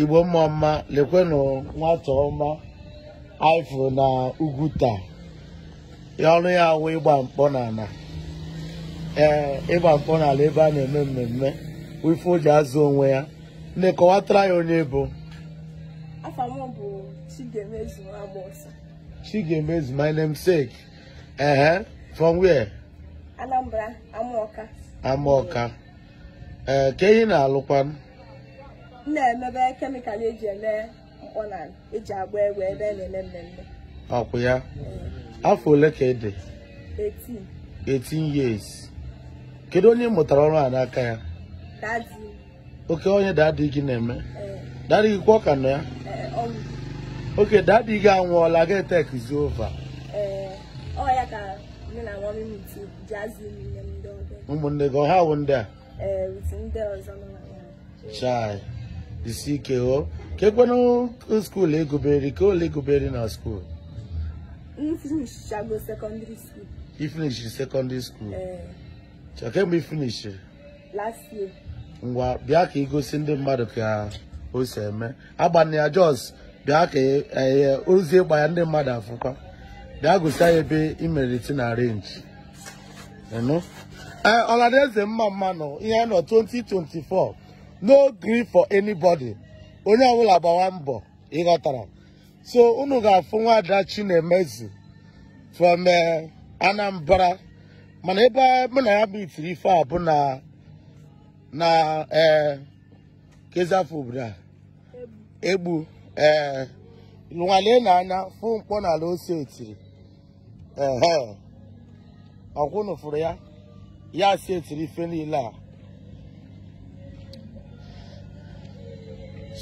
igbo mma mma lekwenụ nwata ọma aịfụrụ na ugwu taa ọrụ ya awụ ịgba mkpọ n'ala ee ịgba mkpọ n'ala ebe a na-eme mmemme wifu o ji azụ onwe ya ndị kọwatara ya onye bụ Chigemezu my namesake ehe from where Anambra Amaoka. Amaoka, ee ka ehi na-alụkwanụ na-emebe kemịkal eji eme mkpọ na eji agba egwu ebe a na-eme mmemme ọkwụ ya afọ ole ka ị dị 18 years kedu onye mụtara ọrụ a n'aka ya oke onye dadi gị na-eme eh. dadị gị kwa ọka nọ ya eh, oke dadi gị anwụọla ga etekizi ova ụmụnne gị ọha wụ ndị a eh, chai isi ike ghọọ ka ekwenụ skuulu egoberi ka ole egoberi na skuulu ifinishiri sekọndịrị skuulu kemgbe ifinishiri ngwa bịa ka igosi e ndị mmadụ ka o si eme agbana ya jos bịa ka e, eh, eh, ozi ịgba ya ndị mmadụ afụkwa bịa gosi ya ebe imeriti na renji eh, ọla na eze mma mma nọ ihe nọ 2024 no gree for anybody onye ọbụla gbawa mbọ ịghọtara so unu ga-afụ nwaada Chinemezi from eh, Anambra mana ebe mụ na ya bụ itiri ife a bụ na na ee eh, egbu ee eh, na-anya fụ mkpọ n'ala ose etiri ehe ọkwụnụ fụrụ ya ya si etiri ife niile a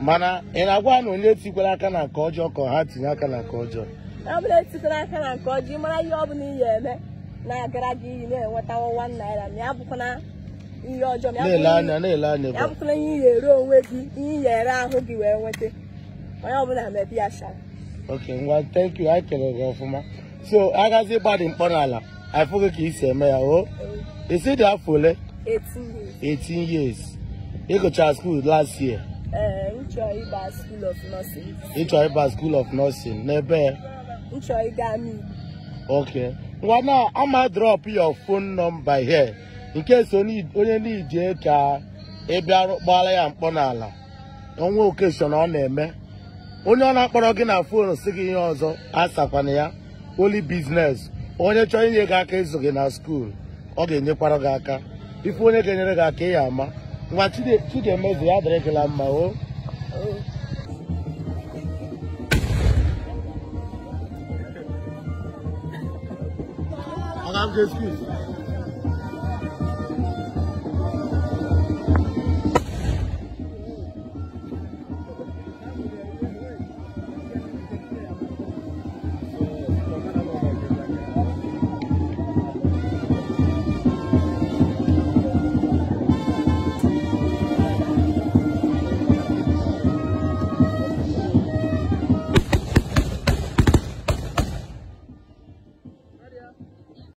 mana ị na-agwa na onye tikwara aka na nke ọjọọ ka ha tinye aka na nke ọjọọ ọ bụla etikwara aka na nke ọjọọ mara ihe ọ bụla ihe eme na-agara gị iyi na-enweta wan naira ma ya bụkwana ihe ọjọọ ya bụkwana ihe ị ga-ere onwe gị ihe ị ere ahụ gị wee nweta onye ọbụla mebi ya shara ok ngwa thank you anyị kelere gị ọfụma so agazi ịgbadị mkpọ n'ala afụghị ka isi eme ya o isi dị afọ ole 18 years ịgụchara skuul last year Eh, Nchoiba School of Nursing. Nchoiba School of Nursing n'ebe Nchoigami. Okay. Nwana ama drop your phone number here in case onye n'ije ka ị bịarụ ya mkpọ n'ala onwe okeshọn ọ na-eme onye ọ na-akpọrọ gị na foonu si gị ihe ọzọ asakwana ya oli biznes onye chọrọ inye gị aka ịzụ gị na skuul ọ ga-enyekwara gị aka ife onye ga-enyere gị aka ya ama nwa chidemeze ya adịrịgịla mma o I have excuse.